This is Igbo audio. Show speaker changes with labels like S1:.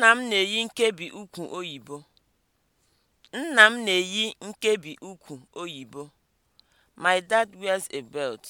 S1: Nna m na-eyi nkebi ukwu oyibo. Nna m na My dad wears a belt.